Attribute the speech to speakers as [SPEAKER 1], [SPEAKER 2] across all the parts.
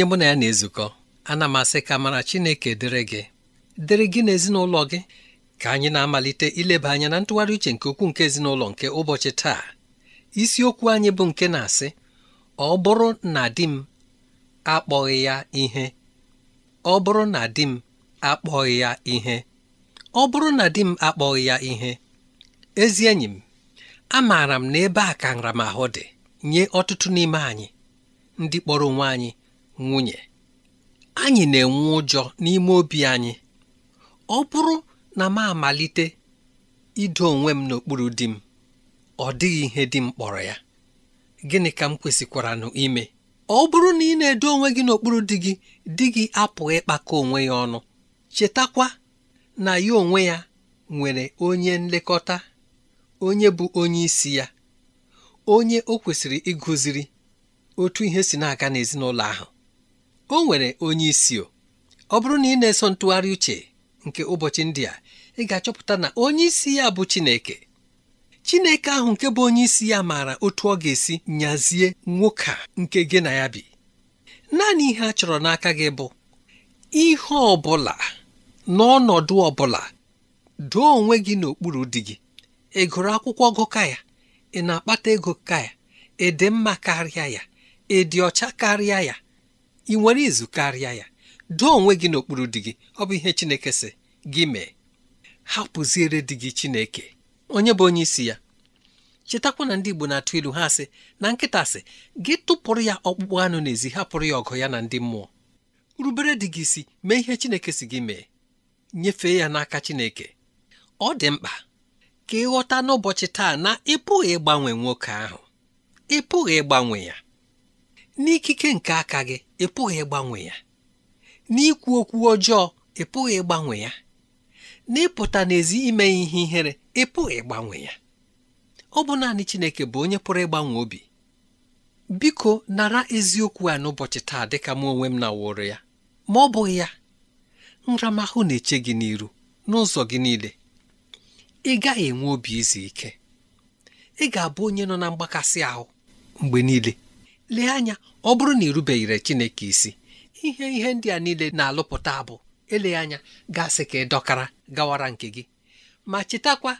[SPEAKER 1] onye mụ na ya na-ezukọ ana m asị ka mara Chineke dịrị gị dịrị gị na ezinụlọ gị ka anyị na-amalite ileba anya na ntụgharị uche nke ukwuu nke ezinụlọ nke ụbọchị taa isiokwu anyị bụ nke na-asị ọ bụrụ na di m akpọghị ya ihe ọ bụrụ na di m akpọghị ya ihe ọ bụrụ na di m akpọghị ya ihe ezi enyi m amaara m na ebe a ka nramahụ dị nye ọtụtụ n'ime anyị ndị kpọrọ onwe anyị nwunye anyị na-enwe ụjọ n'ime obi anyị ọ bụrụ na m amalite ido onwe m n'okpuru di m ọ dịghị ihe di m kpọrọ ya gịnị ka m kwesịkwaranụ ime ọ bụrụ na ị na-edo onwe gị n'okpuru di gị di gị apụghị ịkpakọ onwe ya ọnụ chetakwa na ya onwe ya nwere onye nlekọta onye bụ onye isi ya onye o kwesịrị ịgụziri otu ihe si na-aga n'ezinụlọ ahụ o nwere onye isi ọ bụrụ na ị na-eso ntụgharị uche nke ụbọchị ndị a ị ga-achọpụta na onye isi ya bụ Chineke Chineke ahụ nke bụ onye isi ya maara otu ọ ga-esi nyazie nwoke a nke gị na ya bi naanị ihe a chọrọ n'aka gị bụ ihe ọ bụla n'ọnọdụ ọ bụla doo onwe gị n'okpuru di gị ị gụrụ akwụkwọ gụ ka ya ị na-akpata ego ka ya ị dị mma karịa ya ị dị ọcha karịa ya ị nwere izu karịa ya doo onwe gị n'okpuru di gị ọ bụ ihe Chineke sị gị mee hapụziere di gị Chineke onye bụ onye isi ya chetakwa na ndị Igbo na-atụ ilu ha sị na nkịta sị gị tụpụrụ ya ọkpụkpụ anụ n'ezi hapụrụ ya ọgụ ya na ndị mmụọ rubere dị gị isi mee ihe Chineke si gị mee nyefee ya n'aka Chineke ọ dị mkpa ka ịghọta n'ụbọchị taa na ị pụghị ịgbanwe nwoke ahụ ị pụghị ịgbanwe ya n'ikike nke aka gị ị pụghị ịgbanwe ya n'ikwu okwu ọjọọ ị pụghị ịgbanwe ya n'ịpụta n'ezi ime ihe ihere ị pụghị ịgbanwe ya ọ bụ naanị Chineke bụ onye pụrụ ịgbanwe obi biko nara eziokwu a n'ụbọchị taa dịka m onwe m na wụrụ ya ma ọ bụghị ya nramahụ na-eche gị n'iru n'ụzọ gị niile ị gaghị enwe obi izu ike ị ga-abụ onye nọ na mgbakasị ahụ mgbe niile lee anya ọ bụrụ na ịrubeghịre Chineke isi ihe ihe ndị a niile na-alụpụta abụ eleghị anya gasị ka ị dọkara gawara nke gị ma chetakwa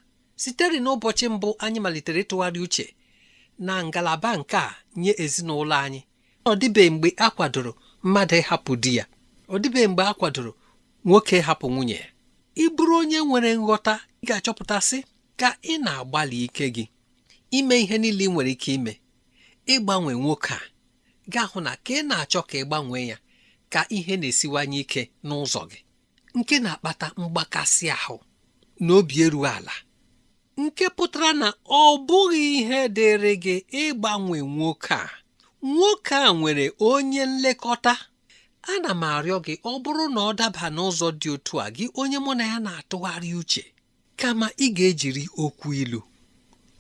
[SPEAKER 1] sitere n'ụbọchị mbụ anyị malitere ịtụgharị uche na ngalaba nke a nye ezinụlọ anyị ọ dịbeghị mgbe a kwadoro mmadụ ịhapụ di ya ọ dịbeghị mgbe a kwadoro nwoke hapụ nwunye ya onye nwere nghọta ị ga-achọpụtasị ka ị na-agbalị ike gị ime ihe niile ị nwere ike ime ịgbanwe nwoke a gaa hụ na ka ị na-achọ ka ị gbanwee ya ka ihe na-esiwanye ike n'ụzọ gị nke na-akpata mgbakasị ahụ na obi erughị ala nke pụtara na ọ bụghị ihe dịrị gị ịgbanwe nwoke a nwoke a nwere onye nlekọta ana m arịọ gị ọ bụrụ na ọ daba n'ụzọ dị otu a gị onye mụ na ya na-atụgharị uche kama ị ga-ejiri okwu ilu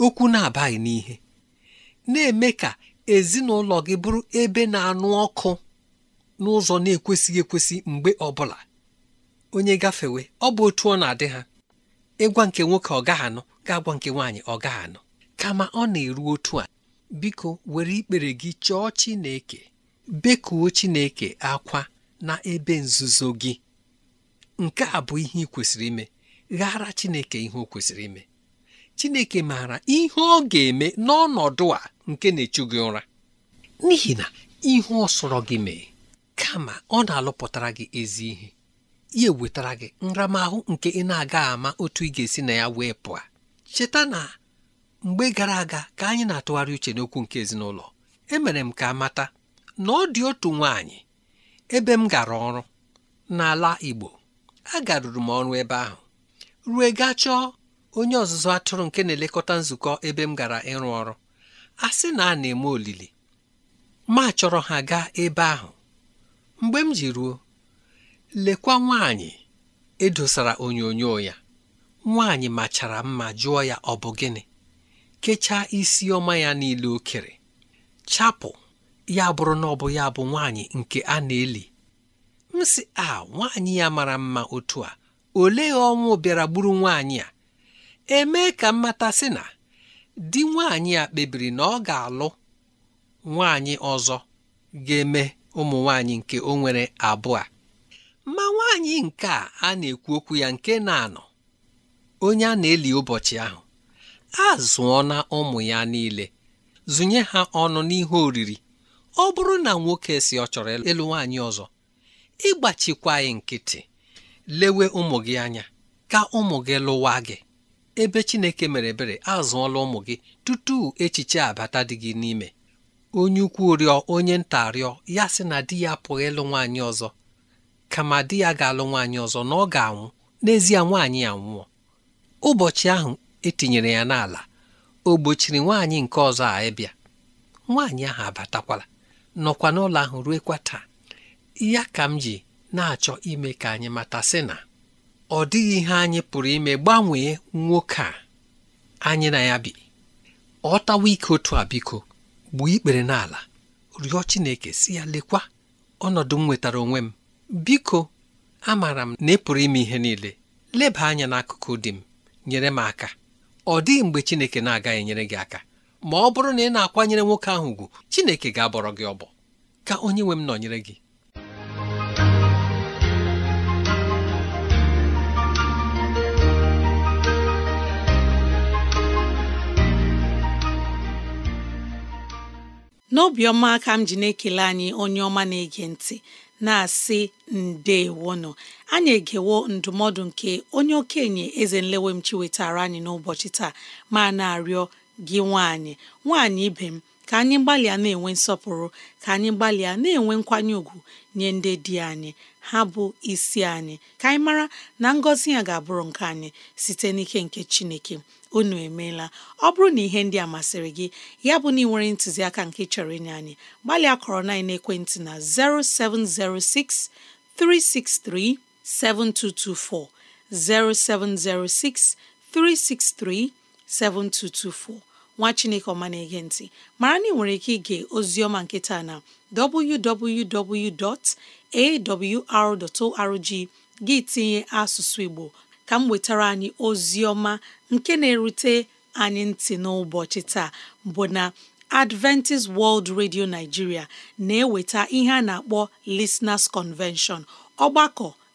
[SPEAKER 1] okwu na-abaghị n'ihe na-eme ka ezinụlọ gị bụrụ ebe na-anụ ọkụ n'ụzọ na-ekwesịghị ekwesị mgbe ọbụla onye gafewe ọ bụ otu ọ na-adị ha ịgwa nke nwoke ọ gaghị anụ ga-agwa nke nwaanyị ọ gaghị anụ kama ọ na-eru otu a biko were ikpere gị chọọ Chineke bekuo Chineke akwa na ebe nzuzo gị nke a bụ ihe ị kwesịrị ime ghara Chineke ihe o kwesịrị ime chineke maara ihe ọ ga-eme n'ọnọdụ a nke na-echu gị ụra n'ihi na ihu ọ sọrọ gị mee kama ọ na-alụpụtara gị ezi ihe ihe wetara gị nramahụ nke ị na-aga ama otu ị ga-esi na ya wee pụọ cheta na mgbe gara aga ka anyị na-atụgharị uche n'okwu nke ezinụlọ emere m ka amata, na ọ dị otu nwaanyị ebe m gara ọrụ n'ala Igbo garuru m ọrụ ebe ahụ ruo gachọọ. onye ọzụzụ atụrụ nke na-elekọta nzukọ ebe m gara ịrụ ọrụ a sị na a na-eme olili ma chọrọ ha gaa ebe ahụ mgbe m ji ruo lekwa nwaanyị edosara onyonyo ya nwaanyị machara mma jụọ ya ọ bụ gịnị kechaa isi ọma ya niile okere chapụ ya bụrụ na ọ bụ ya bụ nwaanyị nke a na-eli m sị a nwaanyị ya mara mma otu a olee ọnwụ bịara gburu nwaanyị a emee ka mmata sị na di nwaanyị a kpebiri na ọ ga-alụ nwaanyị ọzọ ga-eme ụmụ nwaanyị nke o nwere abụọ ma nwaanyị nke a na-ekwu okwu ya nke na-anọ onye a na-eli ụbọchị ahụ a zụọ na ụmụ ya niile zụnye ha ọnụ n'ihe oriri ọ bụrụ na nwoke si ọ chọrọ ịlụ nwaanyị ọzọ ịgbachikwa anyị nkịtị lewe ụmụ gị anya ka ụmụ gị lụwa gị ebe Chineke mere ebere azụọla ụmụ gị tutu echiche abata dị gị n'ime onye ukwu rịọ onye nta rịọ ya sị na di ya apụghị ịlụ nwaanyị ọzọ kama di ya ga-alụ nwaanyị ọzọ na ọ ga-anwụ n'ezie nwaanyị ya nwụọ ụbọchị ahụ etinyere ya n'ala o gbochiri nwaanyị nke ọzọ a ịbịa nwaanyị ahụ abatakwala nọkwa n'ụlọ ahụ kwa taa ya ka m ji na-achọ ime ka anyị mata sị na ọ dịghị ihe anyị pụrụ ime gbanwee nwoke a anyị na ya bi ọ tawa ike otu a biko gbuo ikpere n'ala rịọ Chineke si ya lekwa ọnọdụ m nwetara onwe m biko amaara m na ị ime ihe niile leba anya n'akụkụ dị m nyere m aka ọ dịghị mgbe Chineke na-agaghị enyere gị aka ma ọ bụrụ na ị na-akwanyere nwoke ahụ ugwu Chineke ga-abọrọ gị ọbọ ka onye nwe m nọnyere gị
[SPEAKER 2] n'obiọma ka m ji na-ekele anyị onye ọma na-ege ntị na-asị nọ anyị egewo ndụmọdụ nke onye okenye eze nlewe m chiwetara anyị n'ụbọchị taa ma na-arịọ gị nwaanyị nwaanyị ibe m ka anyị gbalịa na-enwe nsọpụrụ ka anyị gbalịa na-enwe nkwanye ùgwù nye ndị di anyị ha bụ isi anyị ka anyị mara na ngọzi ya ga-abụrụ nke anyị site n'ike nke Chineke unu emeela ọ bụrụ na ihe ndị a masịrị gị ya bụ na ị nwere ntụziaka nke chọrọ inye anyị gbalịa kọrọ na ekwentị na 0706 363 7224 0706 363 7224 nwa chineke ọma na-ege ntị mara na ị nwere ike ige oziọma nkịta na www.awr.org gị tinye asụsụ igbo ka m wetara anyị oziọma nke na-erute anyị ntị n'ụbọchị taa bụ na Adventist World Radio Nigeria na-eweta ihe a na-akpọ Listeners Convention ọgbakọ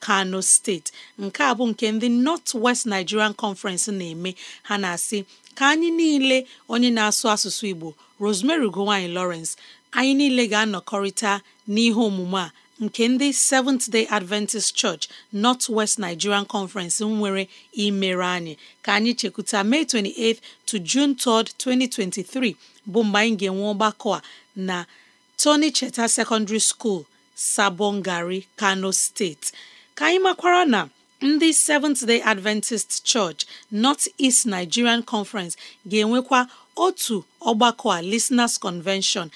[SPEAKER 2] kano steeti nke a bụ nke ndị north west nigerian conference na-eme ha na-asị ka anyị niile onye na-asụ asụsụ igbo rosemary ugowanyi lawrence anyị niile ga-anọkọrịta n'ihe omume a nke ndị Seventh Day Adventist Church North West Nigerian Conference nwere imere anyị ka anyị chekwuta May 28 to June 3, 2023 bụ mgbe anyị ga-enwe ọgbakọ a na Tony Cheta Secondary School, Sabongari, Kano steeti. ka anyị makwara na ndị Seventh Day Adventist Church North East Nigerian Conference ga-enwekwa otu ọgbakọ a Listeners Convention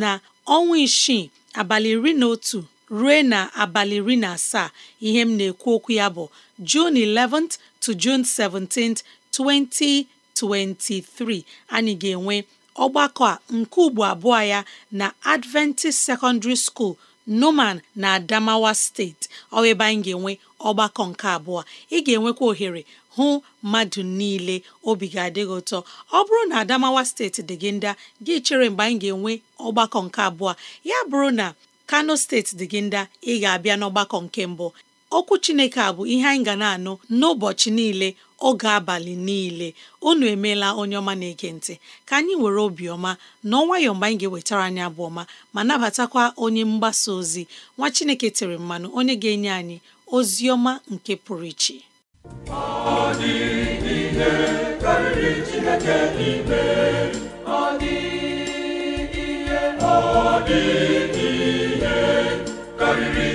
[SPEAKER 2] na ọnwa isii abalị iri na otu ruo na abalị iri na asaa ihe m na-ekwu okwu ya bụ June 11th to June 17th 2023 anyị ga-enwe ọgbakọ a nke ugbo abụọ ya na Adventist Secondary School noman na Adamawa steeti ọ ebe anyị ga-enwe ọgbakọ nke abụọ ị ga-enwekwa ohere hụ mmadụ niile obi ga adịghị ụtọ ọ bụrụ na Adamawa steeti dị gị ndị gị chere mgbe anyị ga-enwe ọgbakọ nke abụọ ya bụrụ na Kano steeti dị gị ndị ị ga-abịa n'ọgbakọ nke mbụ okwu Chineke a bụ ihe anyị ga na-anụ n'ụbọchị niile oge abalị niile unu emeela onye ọma na-ege ntị ka anyị were obiọma na ọnwayọọ mgbe anyị ga-ewetara anyị abụ ọma ma nabatakwa onye mgbasa ozi nwa Chineke tere mmanụ onye ga-enye anyị ozi ọma nke pụrụ iche
[SPEAKER 3] ọ
[SPEAKER 4] karịrị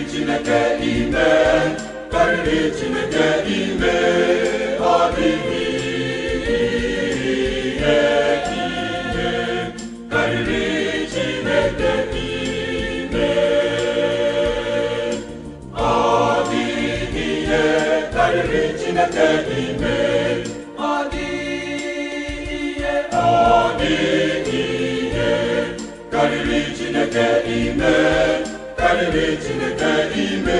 [SPEAKER 3] Chineke ime. karịrị Chineke ime ọ dịghị ihe ihe karịrị Chineke ime ọ dịghị ihe karịrị Chineke ime
[SPEAKER 4] ọ dịghị ihe ọ dịghị ihe karịrị Chineke ime karịrị Chineke ime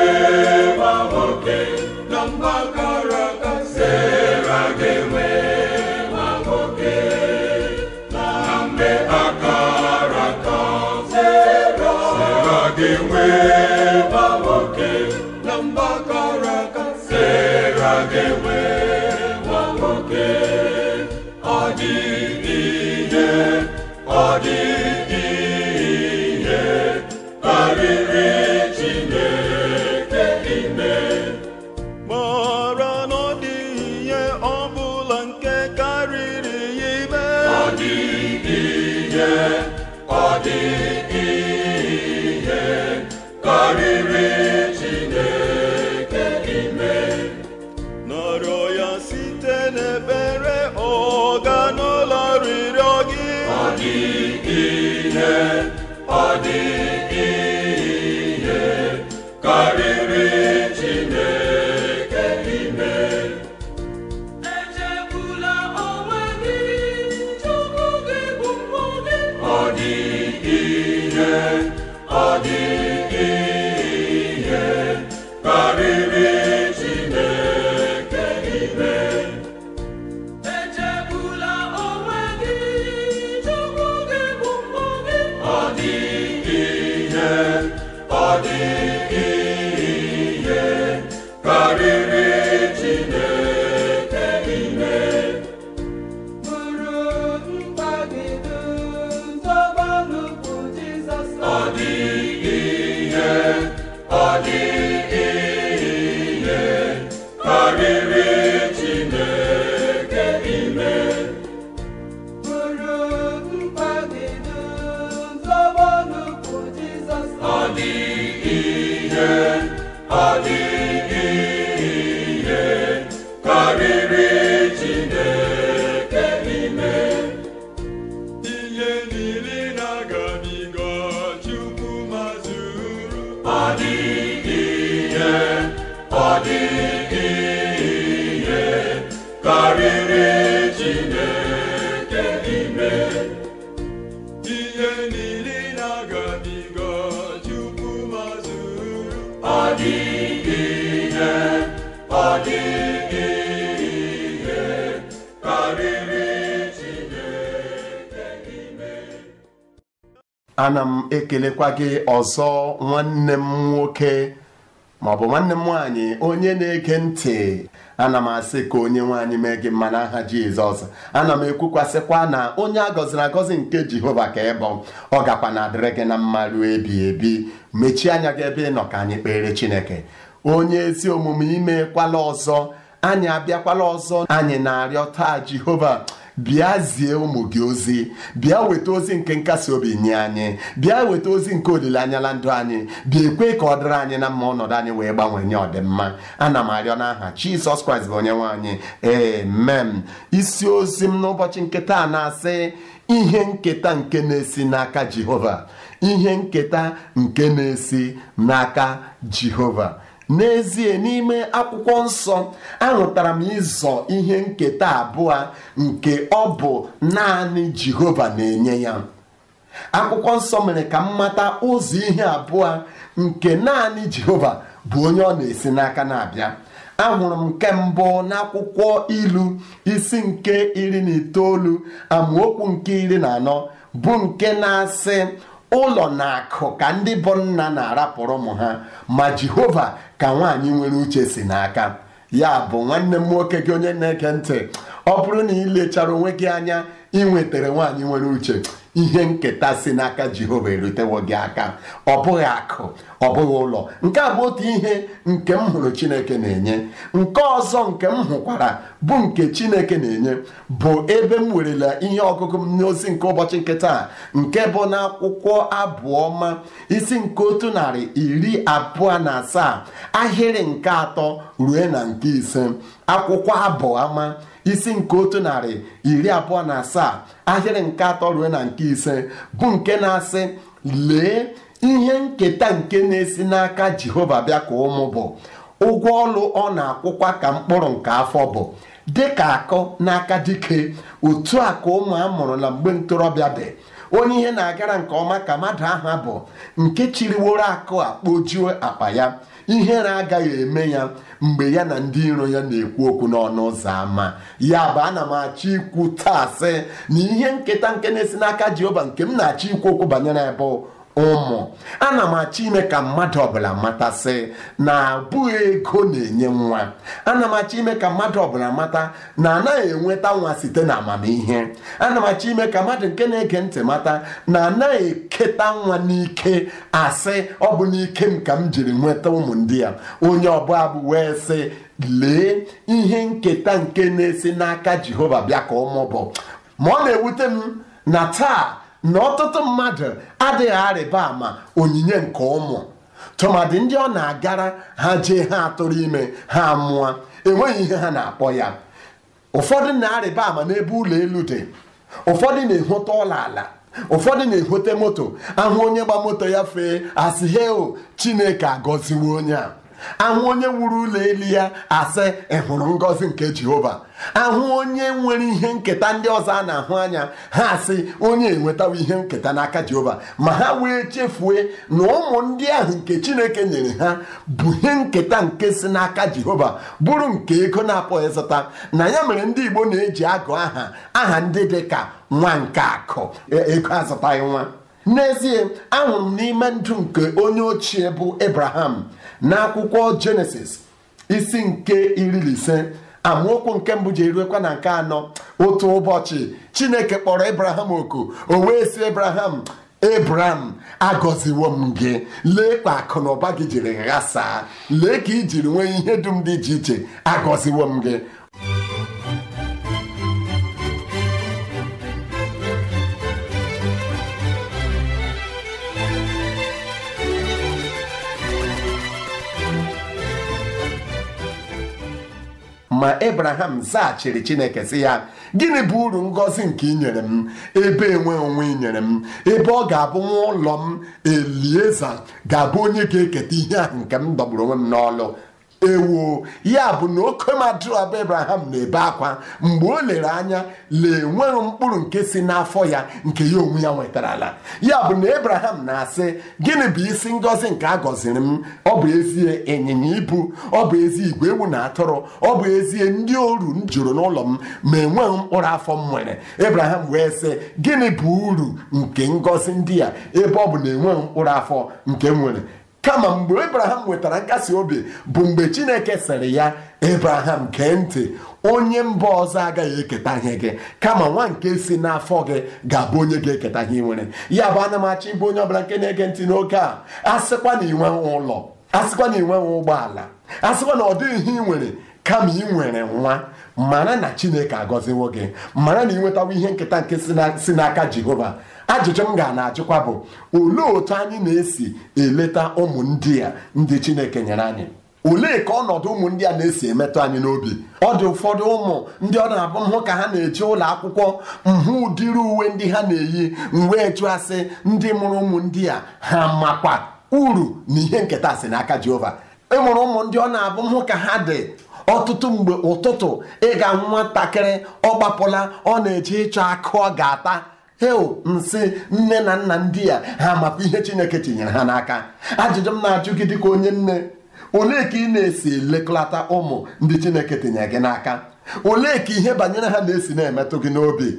[SPEAKER 4] ọ dị
[SPEAKER 5] ana m ekelekwa gị ọzọ nwanne m nwoke maọbụ nwanne m nwaanyị onye na-ege ntị ana m asị ka onye nwaanyị mee gị mma n'aha Jizọs ana m ekwukwasịkwa na onye a gọziri agọzi nke Jehova ka ị bụ ọ gakwa na adịrị gị na mma ruo ebi ebi mechie anya gị ebe ị nọ ka anyị kpere Chineke onye ezi omume imekwala ọzọ anyị abịakwala ọzọ anyị na-arịọ taa Jehova bịa zie ụmụ gị ozi bịa weta ozi nke nkasi obi nye anyị bịa weta ozi nke olileanya na ndụ anyị bịa ekwe ka ọ dịrị anyị na mma ọnọdụ anyị wee gbanwee nye ọdịmma ana m arịọ n'aha Jizọs Kraịst bụ onye nwe anyị mem isi ozi m n'ụbọchị nke na-asị ihe nketa nke na-esi n'aka Jehova ihe nketa nke na-esi n'aka Jehova n'ezie n'ime akwụkwọ nsọ aṅụtara m ịzọ ihe nketa abụọ nke ọ bụ naanị Jehova na-enye ya akwụkwọ nsọ mere ka m mata ụzọ ihe abụọ nke naanị Jehova bụ onye ọ na-esi n'aka na-abịa ahụrụ m nke mbụ n'akwụkwọ ilu isi nke iri na itoolu amaokwu nke iri na anọ bụ nke na-asị ụlọ na akụ ka ndị bụ nna na-arapụrụ ụmụ ha ma Jehova ka nwaanyị nwere uche si n'aka ya bụ nwanne m nwoke gị onye na-eke ntị ọ bụrụ na ị lechara onwe gị anya ị nwetara nwaanyị nwere uche ihe nketa si n'aka Jehova erutewo gị aka ọ bụghị akụ ọ bụghị ụlọ nke a bụ otu ihe nke m hụrụ Chineke na-enye nke ọzọ nke m hụkwara bụ nke Chineke na-enye bụ ebe m werela ihe ọgụgụ m n'ozi nke ụbọchị nke taa nke bụ na akwụkwọ abụọma isi nke otu narị iri abụọ na asaa ahịrị nke atọ rue na nke ise akwụkwọ ama isi nke otu narị iri abụọ na asaa ahịrị nke atọ rue na nke ise bụ nke na-asị lee ihe nketa nke na-esi n'aka jehova bịa ka ụmụ bụ ụgwọ ọlụ ọ na-akwụkwa ka mkpụrụ nke afọ bụ ka akụ n'aka dike otu a ka ụmụ a mụrụ na mgbe ntorobịa dị onye ihe na-agara nke ọma ka mmadụ aha bụ nke chiriworo akụ ojuo akpa ya ihere agaghị eme ya mgbe ya na ndị iro ya na-ekwu okwu n'ọnụ ụzọ ámá ya bụ ana m achọ ikwu taa sị na ihe nketa nke na-esi n'aka jehova nke m na-achọ ikwu okwu banyere ebe ụmụ ana m achọ ime ka mmadụ ọbụla matasị na abụghị ego na-enye nwa ana m achọ ime ka mmadụ ọbụla mata na anaghị enweta nwa site na amamihe ana m achọ ime ka mmadụ nke na-ege ntị mata na anaghị eketa nwa n'ike asị ọ bụ n'ike m ka m jiri nweta ụmụ ndị a onye ọbụla bụ wee sị lee ihe nketa nke na-esi n'aka Jehova bịa ka ụmụ bụ ma ọ na-ewute m na taa na ọtụtụ mmadụ adịghị arịba ama onyinye nke ụmụ tụmadị ndị ọ na-agara ha jee ha atụrụ ime ha mụọ enweghị ihe ha na-akpọ ya ụfọdụ na-arịba ama n'ebe ụlọ elu dị ụfọdụ na-ehote ụlọ ala ụfọdụ na-ehote moto ahụ onye gba moto ya fee asị heo chineke agọziwo onye a ahụ onye wuru ụlọ elu ya asị ịhụrụ ngọzi nke jehova ahụ onye nwere ihe nketa ndị ọzọ a na-ahụ anya ha asị onye enwetawo ihe nketa n'aka jehova ma ha wee chefue na ụmụ ndị ahụ nke chineke nyere ha bụ ihe nketa nke si n'aka jehova bụrụ nke ego na-apụghị ịzụta na ya mere ndị igbo na-eji agụ aha aha ndị dị ka nwa nke akụ e, ego azụtaghị nwa n'ezie ahụrụ m n'ime ndụ nke onye ochie bụ ebraham n'akwụkwọ Jenesis isi nke iri na ise amaokwu nke mbụ ji eruekwa na nke anọ otu ụbọchị Chineke kpọrọ ebraham oku o wee sị Abraham Abraham agọziwo m gị lee ka akụ na ụba gị jiri ghasaa lee ka i nwee ihe dum dị iche iche agọziwo m gị ma ebraham zaghachiri chineke sị ya gịnị bụ uru ngọzi nke inyere m ebe enwe onwe inyere m ebe ọ ga-abụ nwa ụlọ m elieza ga-abụ onye ga-eketa ihe ahụ nke m dọgburu onwe m n'ọlụ ewu ya bụ na oke madụ abụ na-ebe akwa mgbe o lere anya lee enweghị mkpụrụ nke si n'afọ ya nke ya onwe ya nwetarala ya bụ na ebraham na-asị gịnị bụ isi ngọzi nke a gọziri m ọ bụ ezie ịnyịnya ibu ọ bụ ezi igwe ewu na atụrụ ọ bụ ezie ndị oru m jụrụ n'ụlọ m ma enweghị mkpụrụ afọ m nwere ebraham wee sị gịnị bụ uru nke ngọzi ndị a ebe ọ bụ na enweghị mkpụrụ afọ nke m nwere kama mgbe ebraham nwetara nkasi obi bụ mgbe chineke sịrị ya ebraham gee ntị onye mba ọzọ agaghị eketa ihe gị kama nwa nke si n'afọ gị ga-abụ onye ga-eketa ihe nwere ya bụ ana m achọ ịbụ onye ọbụla nke na-ege ntị n'oge a asịkwa na inwe ụlọ asịkwa na inwe ụgbọala asịkwa na ọ dịghị nwere kama ị nwere nwa mara na chineke agọziwo gị mara na ị nwetawo ihe nketa nke si n'aka jehova ajụjụ m ga na-ajụkwa bụ olee otu anyị na-esi eleta ụmụ a ndị Chineke nyere anyị olee ka ọnọdụ ụmụ ndị a na-esi emetụ anyị n'obi ọ dị ụfọdụ ụmụ ndị ọ na-abụ mhụ ka ha na eji ụlọ akwụkwọ mhụ ụdịrị uwe ndị ha na-eyi mgbe chụasị ndị mụrụ ụmụ ndị a ha makwa uru na ihe nketa si n'aka Jehova ịmụrụ e ụmụ ndị ọ na-abụ mhụ ka ha dị ọtụtụ mgbe ụtụtụ ịga nwatakịrị ọ gbapụla ọ na eji ịchọ akụ ọ ga-ata hel nsị nne na nna ndị ya ha maka ihe chineke tinyere ha n'aka ajụjụ m na-ajụ gị dịka onye nne olee ka ị na-esi lekọlata ụmụ ndị chineke tinyere gị n'aka olee ka ihe banyere ha na-esi na-emetụ gị n'obi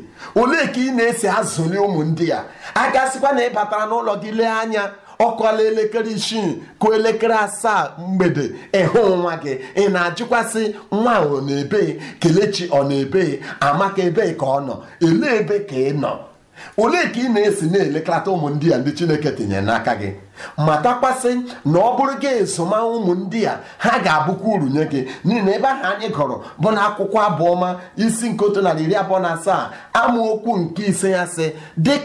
[SPEAKER 5] olee ka ị na-esi azụli ụmụ ndị ya agasịkwa na ị batara n'ụlọ gị lee anya ọkọla elekere isii kụ elekere asaa mgbede ịhụ nwa gị ị na-ajụkwasị nwa ọ na-ebe kelechi ọ na-ebe amaka ebe ka ọ nọ elee ebe ka ị nọ olee ka ị na-esi na-elekọta ụmụ ndị a ndị Chineke tinyere n'aka gị matakwasị na ọ bụrụ gị ezoma a ha ga-abụkwa uru nye gị n'ihi na ebe ahụ anyị gọrọ bụ na akwụkwọ abụọma isi nke otu narị iri abụọ na asaa amaokwu nke ise ya sị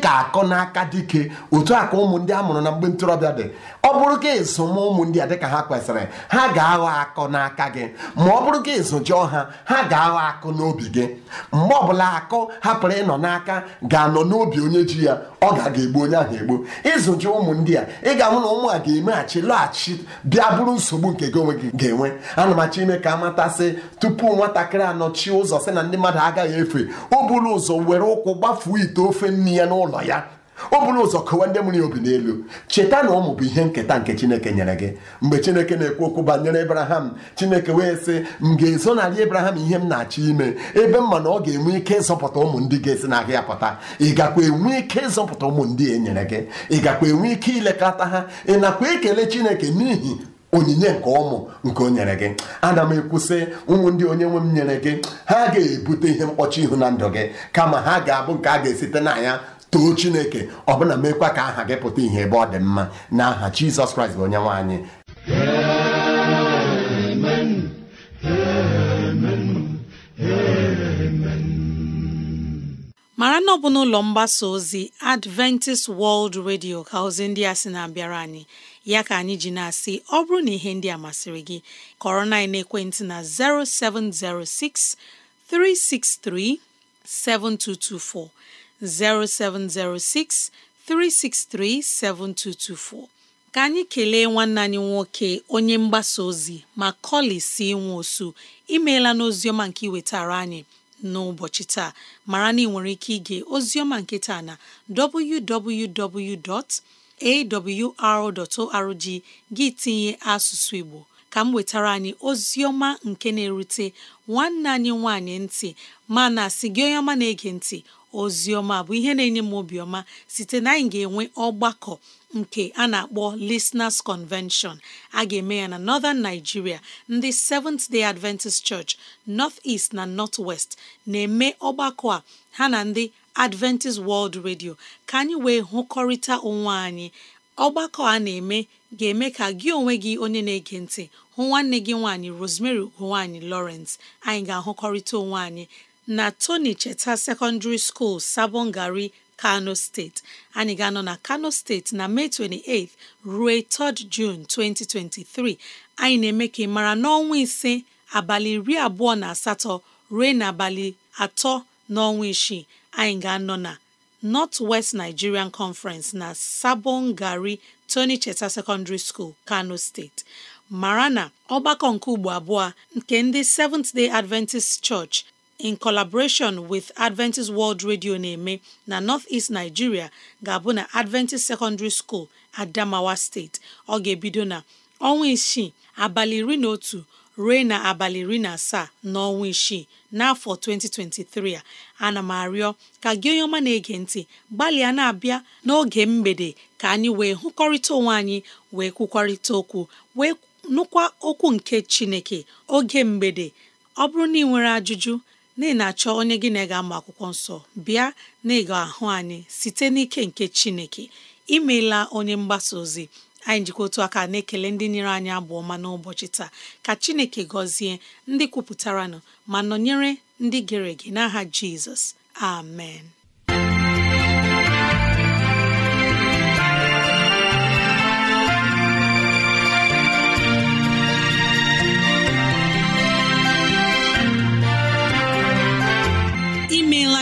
[SPEAKER 5] ka akọ n'aka dike otu a ka ụmụ a mụrụ na mgbe ntorobịa dị ọ bụrụ gị ezoma ụmụ a dịka ha kwesịrị ha ga-aghọ akọ n'aka gị ma ọ bụrụ gị ezojọọ ha ha ga-aghọ akụ n'obi gị mgbe ọbụla akọ hapụrụ ịnọ n'aka ga-anọ n'obi onye ji ya ọ ga-aga egbu onye ahụ egbu ịzụjụ ụmụ ndị ga-ahụ na ụmụ a ga-emeghachi laghachi bịa bụrụ nsogbu nke gị onwe gị ga-enwe ana m achọ ime ka amatasị tupu nwatakịrị anọchi ụzọ si na ndị mmadụ agaghị efe o ụzọ were ụkwụ gbafuo ite ofe nne ya n'ụlọ ya o buru ụzọ kọwa ndị mụrụ ya obi n'elu cheta na ụmụ bụ ihe nketa nke chineke nyere gị mgbe chineke na-ekwu okwu banyere ebraham chineke wee sị m ga-ezonarị ebraham ihe m na-achọ ime ebe m ma na ọ ga-enwe ike ịzọpụta ụmụ ndị ga-esi na ahịa pụta ị gakwa enwe ike ịzọpụta ụmụ ndị e nyere gị ị gakwa enwe ike ilekọta ha ị nakwa ekele chineke n'ihi onyinye nke ụmụ nke o nyere gị ana m ekwusị ụmụ ndị onye nwe m nyere gị ha ga-ebute ihe mkpọchi ihu na ndụ gị kama ha ga-abụ nke a ga-esite na ya too chineke ọbụna mekwa ka aha gị pụta ihe ebe ọ dị mma na aha jizọs kraịst bụ onye nwe anyị
[SPEAKER 2] mara na ọ n'ụlọ mgbasa ozi adventist world radio ka ozi ndị a sị na-abịara anyị ya ka anyị ji na-asị ọ bụrụ na ihe ndị a masịrị gị kọrọ na ekwentị na 0706 363 7224 0706 7224 ka anyị kelee nwanne anyị nwoke onye mgbasa ozi ma kọli si nwe osu imeela n'oziọma nke iwetara anyị n'ụbọchị taa mara na ị nwere ike ige ozioma nke taa na www.awr.org gị tinye asụsụ Igbo ka m wetara anyị ozioma nke na-erute nwanne anyị nwanyị ntị mana si gị onye ọma na-ege ntị ọma bụ ihe na-enye m obiọma site na anyị ga-enwe ọgbakọ nke a na-akpọ Listeners Convention a ga-eme ya na Northern Nigeria ndị Seventh Day Adventist Church North East na North West na-eme ọgbakọ a ha na ndị Adventist World Radio ka anyị wee hụkọrịta onwe anyị ọgbakọ a na-eme ga-eme ka gị onwe gị onye na-ege ntị hụ nwanne gị nwaanyị Rosemary ugo nwaanyị Lawrence anyị ga-ahụkọrịta onwe anyị na Tony Cheta Secondary School Sabongari Kano steeti anyị ga-anọ na Kano steeti na Mee 28 ruo 3 June 2023 anyị na-eme ka ị mara n'ọnwa ise abalị iri abụọ na asatọ ruo n'abalị atọ n'ọnwa isii anyị ga-anọ na North West Nigerian Conference na Sabon Gari Tony Cheta Secondary School Kano steeti mara na ọgbakọ nke ugbo abụọ nke ndị Seventh Day Adventist Church in collaboration with Adventist World Radio na-eme na North-East Nigeria ga-abụ na Adventist Secondary School Adamawa State ọ ga-ebido na ọnwa isii abalị iri na otu ruo na abalị iri na asaa n'ọnwa isii n'afọ 2023 a ana m arịọ ka gị onye ọma na-ege ntị gbalịa na-abịa n'oge mgbede ka anyị wee hụkọrịta onwe anyị wee kwukwarịta okwu wee nụkwa okwu nke Chineke oge mgbede ọ bụrụ na ị nwere ajụjụ na ị na-achọ onye gị na ị ga ama akwụkwọ nsọ bịa na ị ahụ anyị site n'ike nke Chineke imeela onye mgbasa ozi anyị njikọ otu aka na-ekele ndị nyere anyị abụ ọma n'ụbọchị taa ka Chineke gọzie ndị kwupụtara kwupụtaranụ ma nọnyere ndị gere ege n'aha Jizọs amen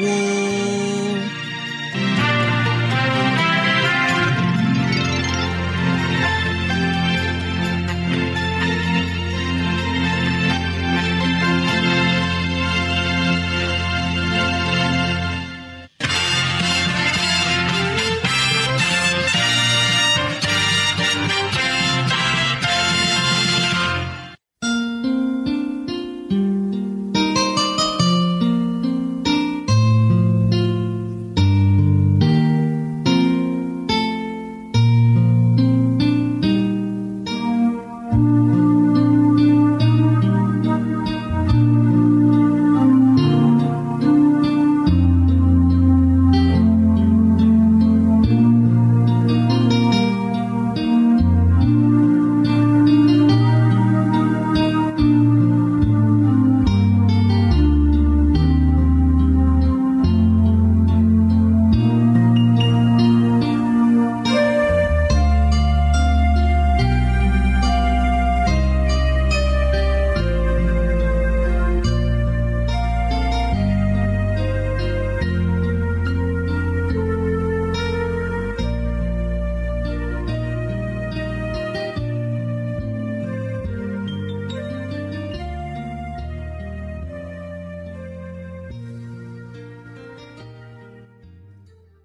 [SPEAKER 2] woo!